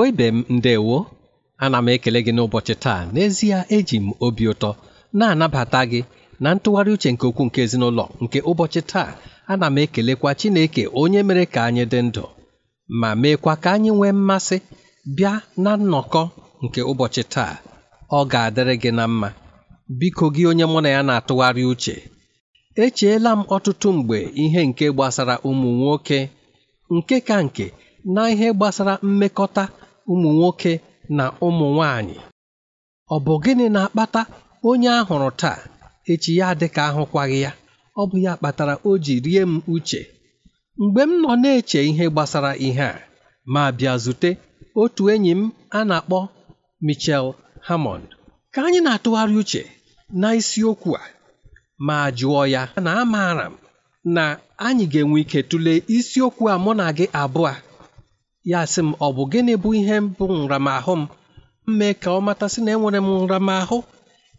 Igbo ibe m ndewo ana m ekele gị n'ụbọchị taa n'ezie eji m obi ụtọ na-anabata gị na ntụgharị uche nke okwu nke ezinụlọ nke ụbọchị taa ana m ekelekwa Chineke onye mere ka anyị dị ndụ ma meekwa ka anyị nwee mmasị bịa na nnọkọ nke ụbọchị taa ọ ga-adịrị gị na mma biko gị onye mụ na ya na-atụgharị uche echeela m ọtụtụ mgbe ihe nke gbasara ụmụ nwoke nke ka nke na ihe gbasara mmekọta ụmụ nwoke na ụmụ nwanyị ọ bụ gịnị na-akpata onye a hụrụ taa echi ya dị ka ahụkwaghị ya ọ bụ ya kpatara o ji rie m uche mgbe m nọ na-eche ihe gbasara ihe a ma bịa zute otu enyi m a na-akpọ Michel Hammond ka anyị na-atụgharị uche na isiokwu a ma jụọ ya na amaara m na anyị ga-enwe ike tụlee isiokwu a mụ na gị abụọ ya sị m ọ bụ gịnị bụ ihe bụ nramahụ m mmee ka ọ matasị na enwere m nramahụ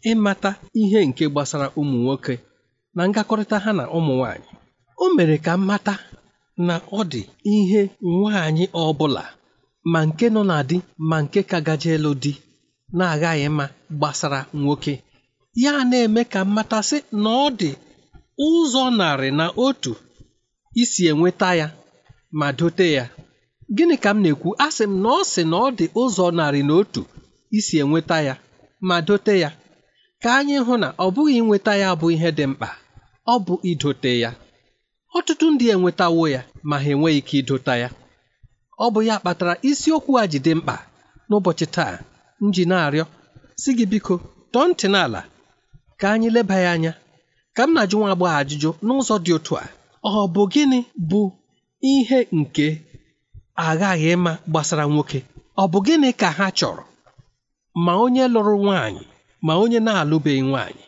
ịmata ihe nke gbasara ụmụ nwoke na ngakọrịta ha na ụmụ nwanyị o mere ka m mata na ọ dị ihe nwaanyị ọ bụla ma nke nọ na di ma nke ka gaje elu di na-aghaghị mma gbasara nwoke ya na-eme ka mmatasị na ọ dị ụzọ narị na otu isi enweta ya ma dote ya gịnị ka m na-ekwu a sị m na ọ sị na ọ dị ụzọ narị na otu isi enweta ya ma dote ya ka anyị hụ na ọ bụghị inweta ya bụ ihe dị mkpa ọ bụ idote ya ọtụtụ ndị enwetawo ya ma ha enweghị ike idota ya ọ bụ ya kpatara isiokwu a ji dị mkpa n'ụbọchị taa m ji na-arịọ si gị biko tọọ ntị n'ala ka anyị leba ya anya ka m na-ajụ nwa agbọghọ ajụjụ n'ụzọ dị otu a ọ bụ gịnị bụ ihe nke aghaghị ịma gbasara nwoke ọ bụ gịnị ka ha chọrọ ma onye lụrụ nwaanyị ma onye na-alụbeghị nwaanyị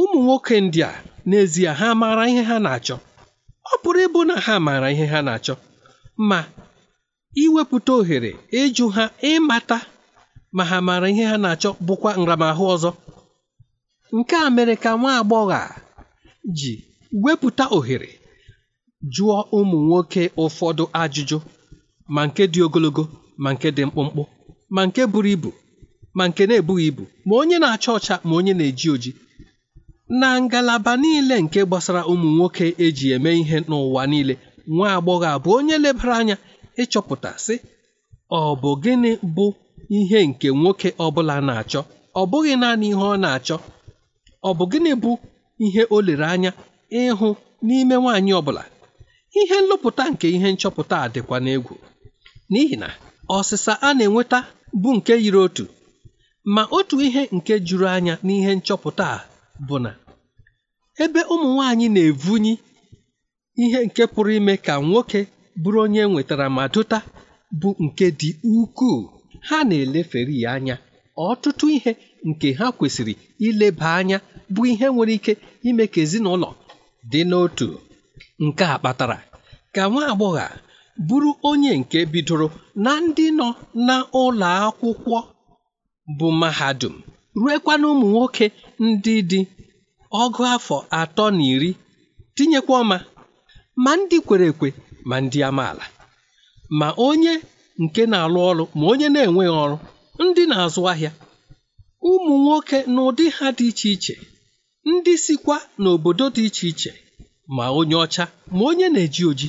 ụmụ nwoke ndị a n'ezie ha maara ihe ha na-achọ ọ pụrụ ịbụ na ha maara ihe ha na-achọ ma iwepụta ohere ịjụ ha ịmata ma ha maara ihe ha na-achọ bụkwa nramahụ ọzọ nke a mere ka nwa agbọghọ a ji wepụta ohere jụọ ụmụ nwoke ụfọdụ ajụjụ ma nke dị ogologo ma nke dị mkpụmkpụ ma nke buru ibu ma nke na-ebughị ibu ma onye na-acha ọcha ma onye na-eji oji na ngalaba niile nke gbasara ụmụ nwoke eji eme ihe n'ụwa niile nwa agbọghọ abụ onye lebara anya ịchọpụta sị ọ bụ gịnị bụ ihe nke nwoke ọbụla na-achọ ọ bụghị naanị ihe ọ na-achọ ọ bụ gịnị bụ ihe o lere anya ịhụ n'ime nwaanyị ọbụla ihe nlụpụta nke ihe nchọpụta a dịkwa n'egwu n'ihi na ọsịsa a na-enweta bụ nke yiri otu ma otu ihe nke juru anya n'ihe nchọpụta a bụ na ebe ụmụ nwanyị na-evunyi ihe nke pụrụ ime ka nwoke bụrụ onye nwetara ma dụta bụ nke dị ukwuu ha na-elefere ya anya ọtụtụ ihe nke ha kwesịrị ileba anya bụ ihe nwere ike ime ka ezinụlọ dị n'otu nke a kpatara ka nwa agbọghọ bụrụ onye nke bidoro na ndị nọ n'ụlọ akwụkwọ bụ mahadum ruekwa na ụmụ nwoke ndị dị ọgụ afọ atọ na iri tinyekwa ọma ma ndị kwere ekwe ma ndị amaala ma onye nke na-alụ ọrụ ma onye na-enweghị ọrụ ndị na-azụ ahịa ụmụ nwoke n'ụdị ha dị iche iche ndị sikwa n'obodo dị iche iche ma onye ọcha ma onye na-eji oji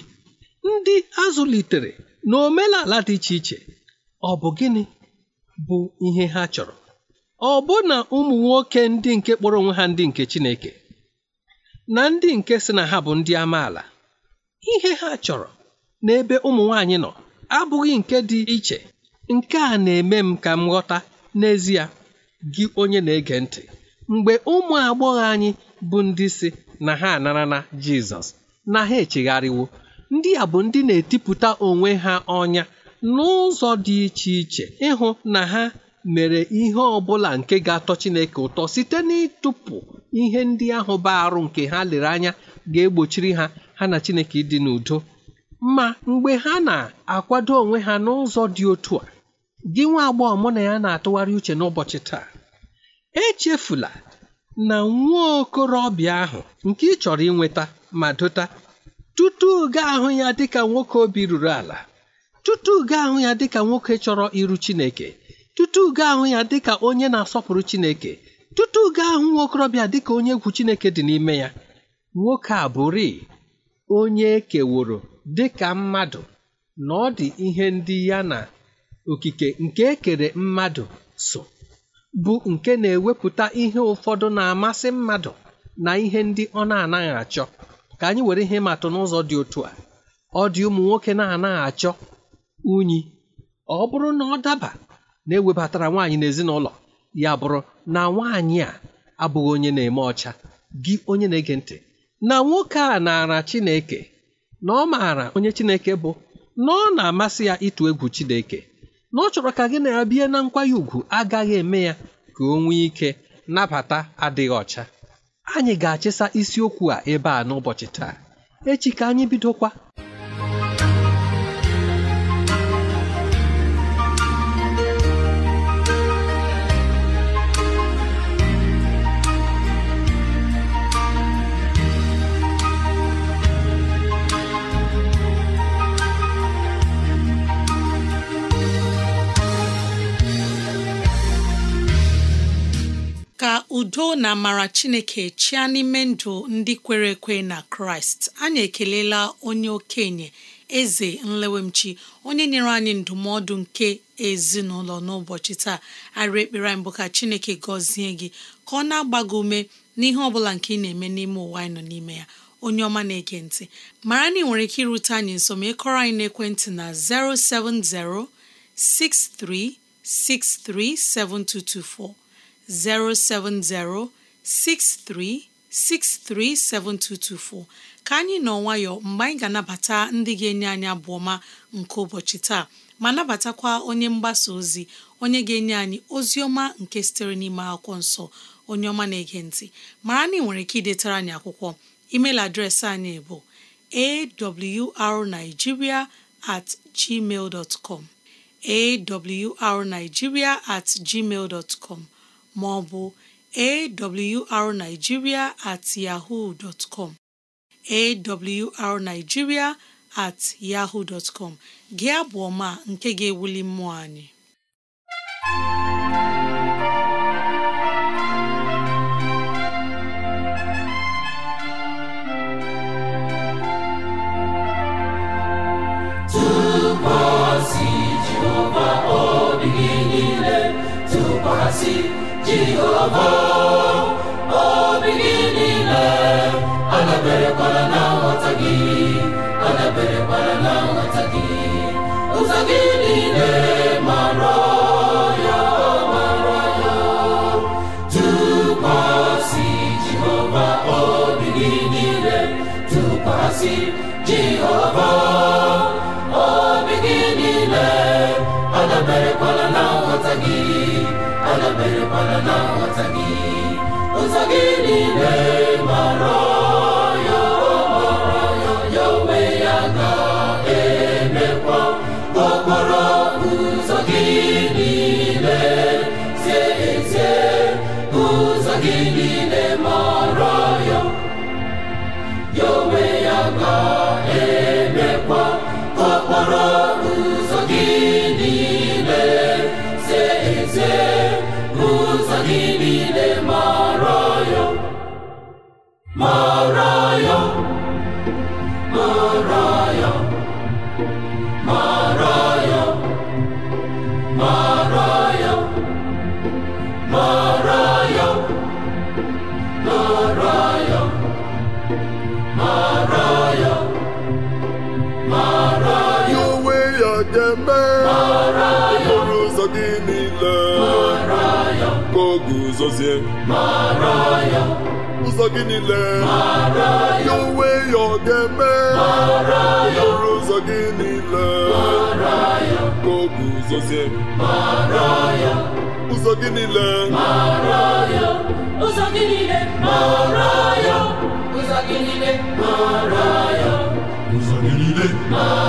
ndị azụlitere na omenala dị iche iche ọ bụ gịnị bụ ihe ha chọrọ ọ bụ na ụmụ nwoke ndị nke kpọrọ onwe ha ndị nke Chineke na ndị nke si na ha bụ ndị amaala ihe ha chọrọ n'ebe ụmụ nwanyị nọ abụghị nke dị iche nke a na-eme m ka m ghọta n'ezie gị onye na-ege ntị mgbe ụmụ agbọghọ anyị bụ ndị si na ha anara na Jizọs na ha echegharịwo ndị a bụ ndị na-etipụta onwe ha ọnya n'ụzọ dị iche iche ịhụ na ha mere ihe ọbụla nke ga-atọ Chineke ụtọ site n'ịtụpụ ihe ndị ahụ baa nke ha lere anya ga-egbochiri ha ha na Chineke ịdị n'udo ma mgbe ha na-akwado onwe ha n'ụzọ dị otu a gị nwa agbọghọ mụ na ya na-atụgharị uche n'ụbọchị taa echefula na nwa okorobịa ahụ nke ị chọrọ inweta ma dota tutu ga ahụ ya dịka nwoke obi ruru ala tutu gaa ahụ ya dịka nwoke chọrọ iru Chineke tutu ga ahụ ya dịka onye na-asọpụrụ Chineke tutu ga ahụ nwokorobịa dịka onye egwu Chineke dị n'ime ya nwoke a bụrị onye ekeworo dịka mmadụ na ọ dị ihe ndị ya na okike nke ekere mmadụ so bụ nke na-ewepụta ihe ụfọdụ na-amasị mmadụ na ihe ndị ọ na-anaghị achọ ka anyị were ihe matụ n'ụzọ dị otu a ọ dị ụmụ nwoke na-anaghị achọ unyi ọ bụrụ na ọ daba na ewebatara nwaanyị n'ezinụlọ ya bụrụ na nwaanyị a abụghị onye na-eme ọcha gị onye na-ege ntị na nwoke a naara Chineke na ọ maara onye Chineke bụ na ọ na-amasị ya ịtụ egwu Chineke na ọ chọrọ ka gị na ya bie na nkwanye ùgwù agaghị eme ya ka o nwee ike nabata adịghị ọcha anyị ga-achịsa isiokwu a ebe a n'ụbọchị taa echi ka anyị bidokwa udo na amara chineke chịa n'ime ndụ ndị kwere ekwe na kraịst anyị ekelela onye okenye eze nlewemchi onye nyere anyị ndụmọdụ nke ezinụlọ n'ụbọchị taa arị ekpere anyị bụ ka chineke gọzie gị ka ọ na-agbago ume n'ihe ọ bụla nke ị na-eme n'ime ụwa anyị nọ n'ime ya onye ọma na-ege ntị mara na ị nwere ike irute anyị nso ma ịkọrọ anyị n'ekwentị na 070 6363 7224 07063637224 ka anyị nọ nwayọ mgbe anyị ga-anabata ndị ga-enye anyị abụ ọma nke ụbọchị taa ma nabatakwa onye mgbasa ozi onye ga-enye anyị ozi ọma nke sitere n'ime akwụkwọ nsọ onye ọma na-ege ntị mara na ị nwere ike idetara anyị akwụkwọ email adreesị anyị bụ awrnigeria at gmail com awrnigeria at gmail com ma ọ bụ awrnigeria at yahoo dot com awrnigeria at yahoo dot com gị abụ ọma nke ga-ewuli mmụọ anyị jehova obi gị niile kwara na nghọta gị kwara na nghọta gị ụzọ gị niile na-aghọta gị ụzọ gị niile mara ya ya onwe ya ga okporo ụzọ gọzie ụzọ gị niile ya onwe ya ọ ga-eme ọrụ ụzọ gị niile ka o guzozie ụzọ gị niile ụzọ gị niile ụzọ gị niile ụzọ gị niile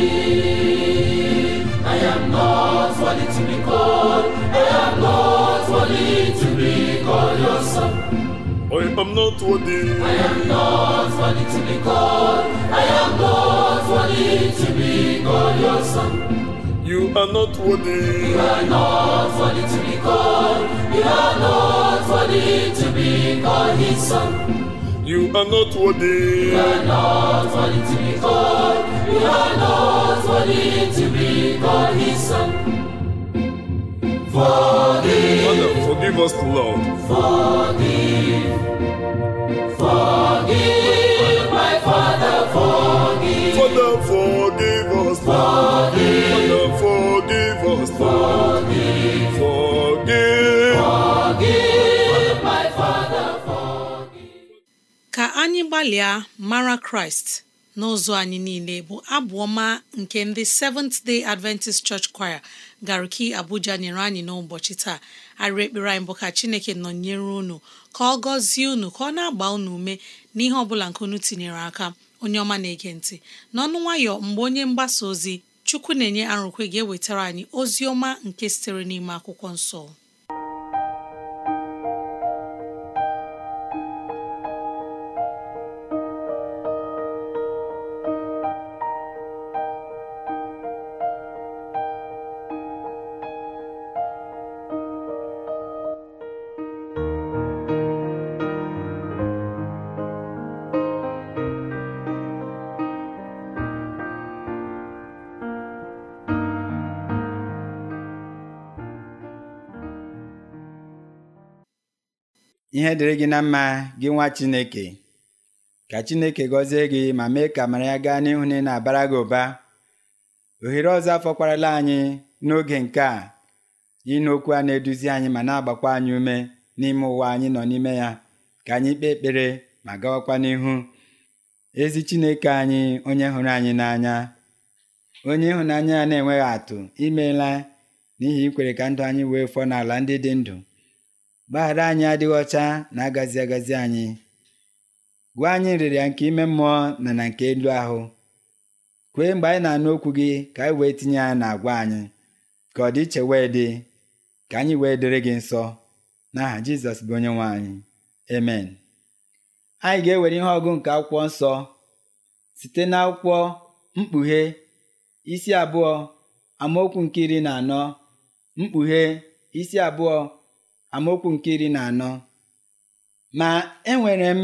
I am not worthy to be called. I am not worthy to be called your son. I am not worthy. I am not worthy to be called. I am not worthy to be called your son. You are not worthy. You are not worthy to be called. You are not worthy to be called his son. You are not worthy. You are not worthy to be called. You are not worthy to be called His Son. Forgive. Father, forgive us, Lord. Forgive. Forgive, my Father, forgive. Father, forgive us. Forgive. Father, forgive us. Forgive. anyị gbalịa mara kraịst n'ụzọ anyị niile bụ abụ ọma nke ndị Seventh Day Adventist Church Choir garuki Abuja nyere anyị n'ụbọchị taa arịrị ekpere anyị bụ ka Chineke nọnyere unu ka ọ gọzie unu ka ọ na-agba unu ume n'ihe ọbụla nke unu tinyere aka onye ọma na-ege ntị n'ọnụ nwayọ mgbe onye mgbasa ozi Chukwu na-enye arụkwe ga-ewetara anyị ozi ọma nke sitere n'ime akwụkwọ nsọ ihe dịrị gị na mma gị nwa Chineke ka Chineke gọzie gị ma mee ka mara ya gaa n'ihu na ị na-abara gị ụba ohere ọzọ afọkwarala anyị n'oge nke a ịnụ okwu a na-eduzi anyị ma na-agbakwa anyị ume n'ime ụwa anyị nọ n'ime ya ka anyị kpee ekpere ma gawakwa n'ihu ezi Chineke anyị onye hụrụ anyị n'anya onye ịhụnanya ya na-enweghị atụ imeela n'ihi ikwere ka ndụ anyị wee fọọ n'ala ndị dị ndụ gbaghara anyị adịghị ọcha na agazi agazi anyị gwa anyị nrịrịa nke ime mmụọ na na nke elu ahụ kwee mgbe anyị na-anụ okwu gị ka anyị wee tinye ya agwa anyị ka ọ dị iche wee dị ka anyị wee dịrị gị nsọ n'aha Jizọs bụ onye nwe anyị amen anyị ga-ewere ihe ọgụ nke akwụkwọ nsọ site n'akwụkwọ mkpughe isi abụọ amaokwu nke iri na anọ mkpughe isi abụọ amaokwu nke iri na anọ ma enwere m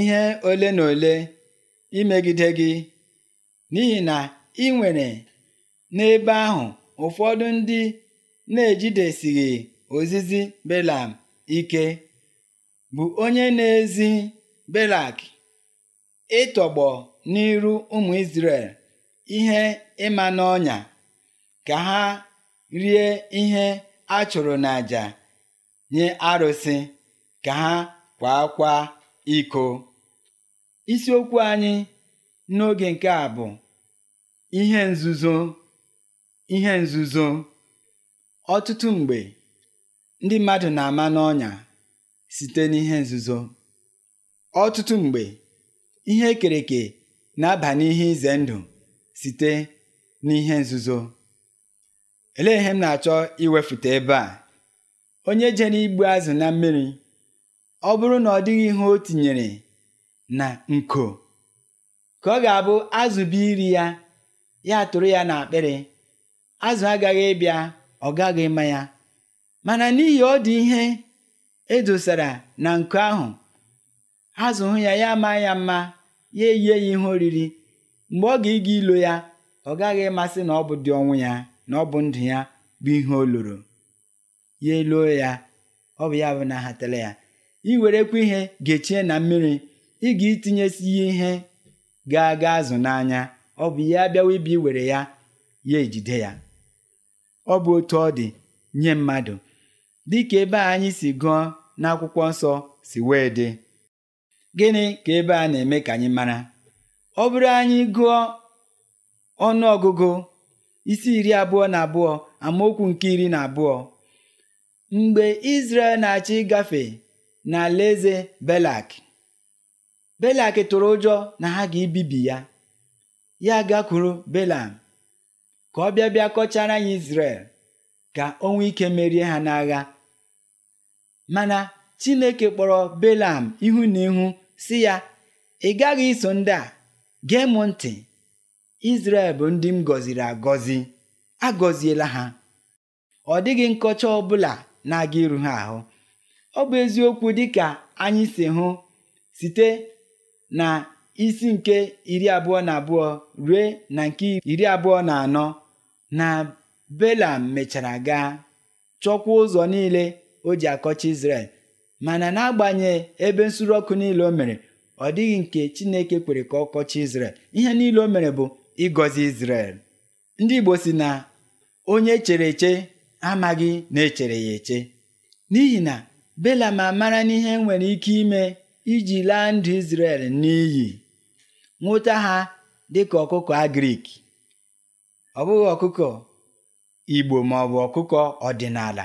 ihe ole na ole imegide gị n'ihi na ị nwere n'ebe ahụ ụfọdụ ndị na-ejidesighị ozizi Belam ike bụ onye na-ezi Belak ịtọgbọ n'iru ụmụ Izrel ihe ịma n'ọnya ka ha rie ihe a chụrụ n'àjà nye arụsị ka ha kwaakwa iko isiokwu anyị n'oge nke a bụ ihe nzuzo ihe nzuzo ọtụtụ mgbe ndị mmadụ na-ama n'ọnya site n'ihe nzuzo ọtụtụ mgbe ihe ekereke na-aba n'ihe ize ndụ site n'ihe nzuzo elee ihe m na-achọ iwefute ebe a onye jere igbu azụ na mmiri ọ bụrụ na ọ dịghị ihe o tinyere na nko ka ọ ga-abụ azụ bụ iri ya ya tụrụ ya na akpịrị azụ agaghị ịbịa ọ gaghị ịma ya mana n'ihi ọ dị ihe edosara na nko ahụ azụ hụ ya ya maa ya mma ya eyie ya ihe oriri mgbe ọ ga-ịga ilo ya ọ gaghị ịmasị na ọ bụ dị ọnwụ ya na ọ bụ ndụ ya bụ ihe o loro ya eluo ya ọ bụ ya bụ na ahatala ya i werekwa ihe gechie na mmiri ị ga itinyesi ya ihe ga-aga azụ n'anya ọ bụ ya bịawa ibi were ya ya ejide ya ọ bụ otu ọ dị nye mmadụ dịka ebe a anyị si gụọ n'akwụkwọ nsọ si wee dị gịnị ka ebe a na-eme ka anyị mara ọ bụrụ anyị gụọ ọnụ ọgụgụ isi iri abụọ na abụọ amaokwu nke iri na abụọ Mgbe Izrel na-achị gafe n'alaeze Belak, Belak tụrụ ụjọ na ha ga-ebibi ya. Ya gakwuru Belam ka ọ bịa bịa kọchara anyị isrel ka o nwee ike merie ha n'agha. Mana Chineke kpọrọ Belam ihu na ihu si ya ị gaghị iso ndị a gee m ntị Izrel bụ ndị m gọziri agọzi agọziela ha ọ dịghị nkọcha ọ bụla na-aga iru ha ahụ ọ bụ eziokwu dịka anyị si hụ site na isi nke iri abụọ na abụọ rue na nke iri abụọ na anọ na Belam mechara gaa chọkwa ụzọ niile o ji akọcha isrel mana n'agbanyeghị ebe nsuru ọkụ niile o mere ọ dịghị nke Chineke kwere ka ọ kọcha ihe niile o mere bụ ịgọzi Izrel ndị Igbo si na onye chere eche amaghị na echere ya eche n'ihi na Bela Belam amara n'ihe nwere ike ime iji laa ndụ Izrel n'iyi nwụta ha dịka ọkụkọ agrik ọ bụghị ọkụkọ Igbo ma ọ bụ ọkụkọ ọdịnala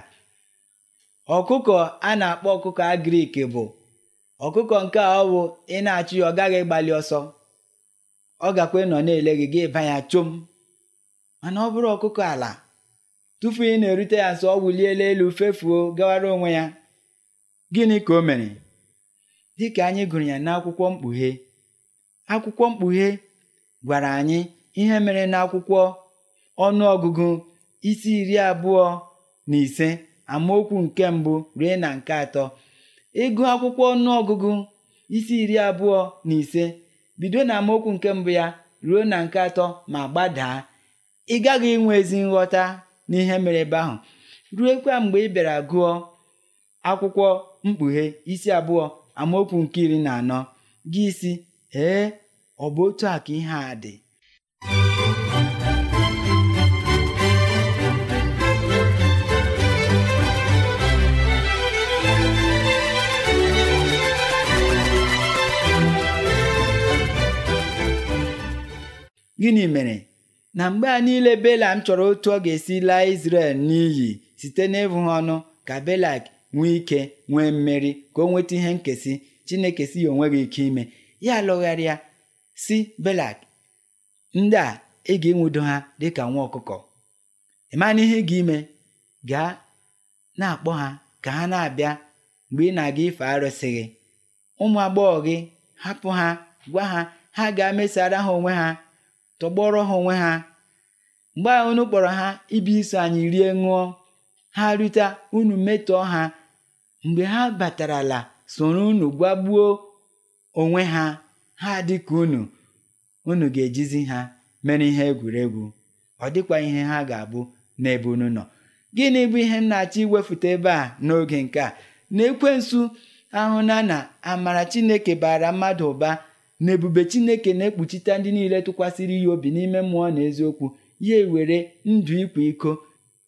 ọkụkọ a na-akpọ ọkụkọ agrik bụ ọkụkọ nke ọ bụ ị na-achụ ya ọ gaghị gbalị ọsọ ọ gakwa nọ na-ele gị gị ịba ya chom mana ọ bụrụ ọkụkọ ala tupu ị na-erute ya sọ ọ wuliela elu fefuo gawara onwe ya gịnị ka o mere Dịka anyị gụrụ ya n'akwụkwọ mkpughe akwụkwọ mkpughe gwara anyị ihe mere n'akwụkwọ ọnụọgụgụ isi iri abụọ na ise amaokwu nke mbụ ruo na nke atọ ịgụ akwụkwọ ọnụọgụgụ isi iri abụọ na ise bido na amaokwu nke mbụ ya ruo na nke atọ ma gbadaa ị gaghị inwe ezi nghọta n'ihe mere ebe ahụ ruekwa mgbe ị bịara gụọ akwụkwọ mkpughe isi abụọ amaokwu nke iri na anọ gị isi ee ọ bụ otu a ka ihe a dị gịnị mere na mgbe a niile belam chọrọ otu ọ ga-esi laa isrel n'iyi site n'ịbụ ha ọnụ ka belak nwee ike nwee mmeri ka o nweta ihe nkesị chineke si ya gị ike ime ya lụgharịa si belak ndị a ị ga-enwudo ha dị ka nwa ọkụkọ ịmana ihe gị ime gaa na-akpọ ha ka ha na-abịa mgbe ị na-aga ife arụsị ụmụ agbọghọ hapụ ha gwa ha ha ga mesara ha onwe ha tọgbọrọ ha onwe ha mgbe ahụ unu kpọrọ ha ibi iso anyị rie ṅụọ ha rute unu metọọ ha mgbe ha batarala soro unu gwagbuo onwe ha ha dịka unu unu ga-ejizi ha mere ihe egwuregwu ọ dịkwa ihe ha ga-abụ n'ebe unu nọ gịnị bụ ihe m na-achọ iwefute ebe a n'oge nke a na ekwensu ahụ na na amara chineke bara mmadụ ụba na ebube chineke na-ekpuchite ndị niile tụkwasịrị ya obi n'ime mmụọ na eziokwu ya ewere ndụ ikwa iko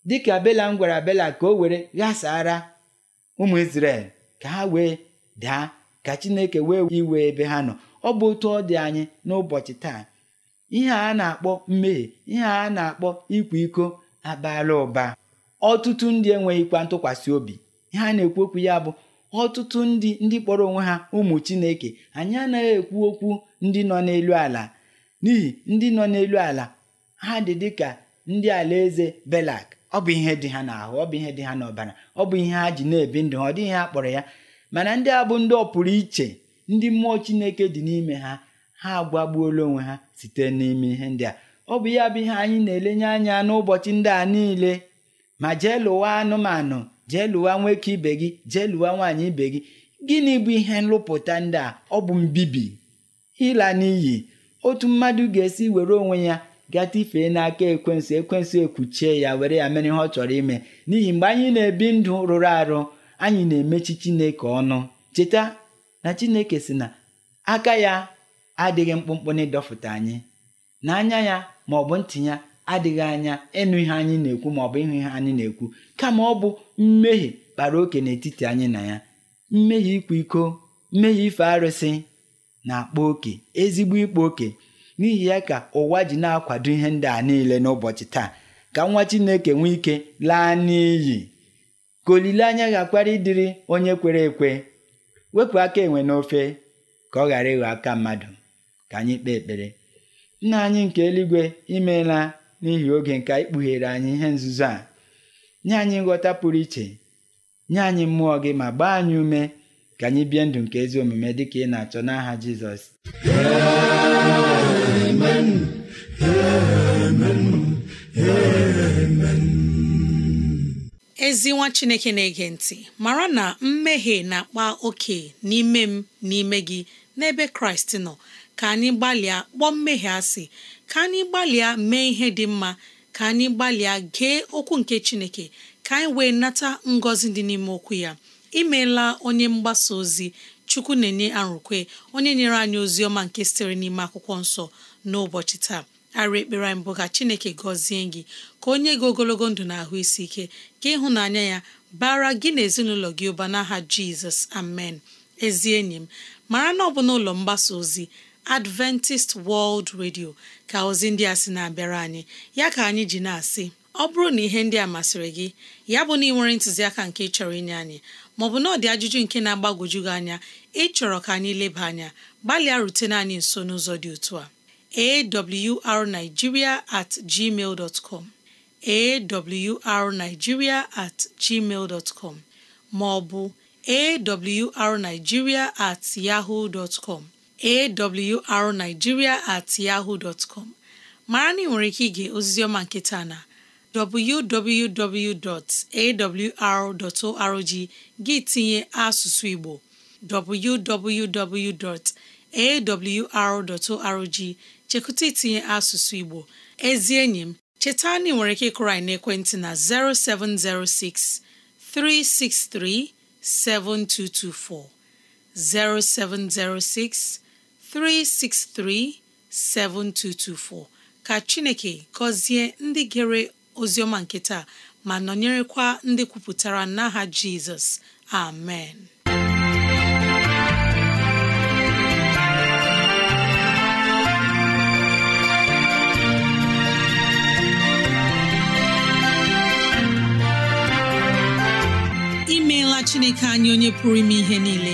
dịka m gwara bela ka o were ghasara ụmụ Izrel ka ha wee daa ka chineke wee iwe ebe ha nọ ọ bụ otu ọ dị anyị n'ụbọchị taa ihe a na-akpọ mmehie ihe a na-akpọ ikwa iko abaala ụba ọtụtụ ndị enweghịkwa ntụkwasị obi ihe a na-ekwu okwu ya bụ ọtụtụ ndị ndị kpọrọ onwe ha ụmụ chineke anyị anaghị ekwu okwu ndị nọ n'elu ala n'ihi ndị nọ n'elu ala ha dị dịka ndị alaeze belak ọ bụ ihe dị ha n'ahụ ọ bụ ihe dị ha n'ọbara ọ bụ ihe ha ji na-ebi ndụ ha ọ dịghị ha kpọrọ ya mana ndị a bụ ndị ọ pụrụ iche ndị mmụọ chineke dị n'ime ha ha agbagbuola onwe ha site n'ime ihe ndị a ọ bụ ya bụ ihe anyị na-elenye anya n'ụbọchị ndị a niile ma jee lụwa anụmanụ jee lụwa nwoke ibe gị jee lụwa nwaanyị ibe gị gịnị bụ ihe nlụpụta ndị a ọ bụ mbibi ịla n'iyi otu mmadụ ga-esi were onwe ya gatifee n'aka ekwensị ekwensu ekwuchie ya were ya mere ihe ọ chọrọ ime n'ihi mgbe anyị na-ebi ndụ rụrụ arụ anyị na-emechi chineke ọnụ cheta na chineke si na aka ya adịghị mkpụmkpụ na ịdọfụta anyị na anya ya ma ọ bụ ntị ya adịghị anya ịnụ ihe anyị na-ekwu maọbụ ịhụ ihe anyị na-ekwu kama ọ bụ mmehie kpara oke n'etiti anyị na ya mmehie ịkwa iko mmehie ife arụsị na-akpa oke ezigbo ịkpa oke n'ihi ya ka ụwa ji na-akwado ihe ndị a niile n'ụbọchị taa ka nwa Chineke nwee ike laa n'iyi ka olileanya ga ịdịrị onye kwere ekwe wepụ aka enwe n'ofe ka ọ ghara ịghọ aka mmadụ ka anyị kpee ekpere nna anyị nke eluigwe imeela n'ihi oge nke anyị kpughere anyị ihe nzuzo a nye anyị nghọta pụrụ iche nye anyị mmụọ gị ma gbaa anyị ume ka anyị bie ndụ nke ezi omume dị ka ị na-achọ n'aha Jizọs ezi nwa Chineke na-ege ntị mara na mmehie na-akpa oke n'ime m n'ime gị n'ebe Kraịst nọ ka anyị gbalịa kpọọ mmehie asị ka anyị gbalịa mee ihe dị mma ka anyị gbalịa gee okwu nke Chineke ka anyị wee nata ngọzi dị n'ime okwu ya imeela onye mgbasa ozi chukwu na-enye arụkwe onye nyere anyị ozi ọma nke sitere n'ime akwụkwọ nsọ n'ụbọchị taa ara ekpere anyị bụ ka Chineke gọzie gị ka onye gị ogologo ndụ na ahụ isi ike ka ịhụnanya ya bara gị na ezinụlọ gị ụba n'aha Jizọs amen ezi enyi m mara na ọ bụ n'ụlọ mgbasa ozi Adventist World Radio ka ozi ndị a sị na-abịara anyị ya ka anyị ji na-asị ọ bụrụ na ihe ndị a masịrị gị ya bụ na ị nwere ntụziaka nke ịchọrọ inye anyị maọbụ na ọ dị ajụjụ nke na-agbagwoju gị anya ịchọrọ ka anyị leba anya gbalịa rutene anyị nso n'ụzọ dị otu a awrnigeria at gmail dot com awrnigeria at gmail com maọbụ awrnigeria at yahoo dot com awrnigeria at yahoo dot com mara na ị nwere ike ige oziziọma nke taa na www.awr.org gị tinye asụsụ Igbo www.awr.org chekụta itinye asụsụ Igbo ezi enyi m cheta na ị nwere ike ịkụrụ anyị n'ekwentị na 0706 363 7224 0706 363 7224 ka Chineke gọzie ndị gere oziọma nke taa ma nọnyerekwa ndị kwupụtara n'aha Jizọs amen imeela Chineke anyị onye pụrụ ime ihe niile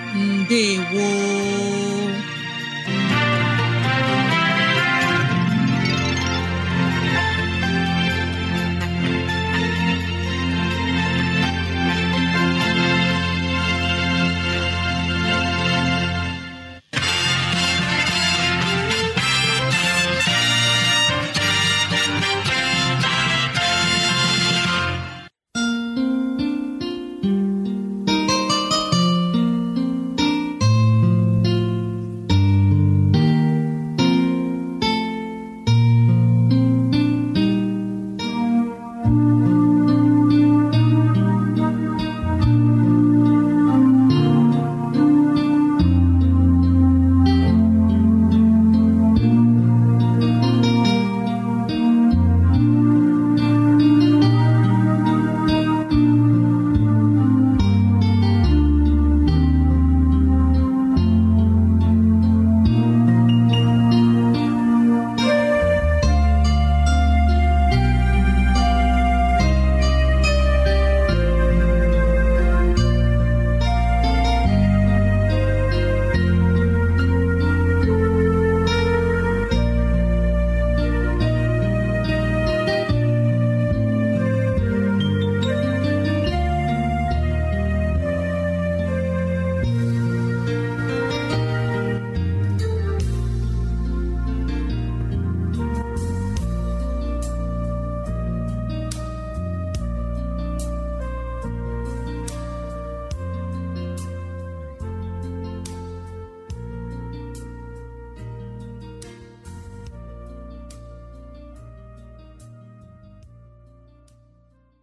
ndewo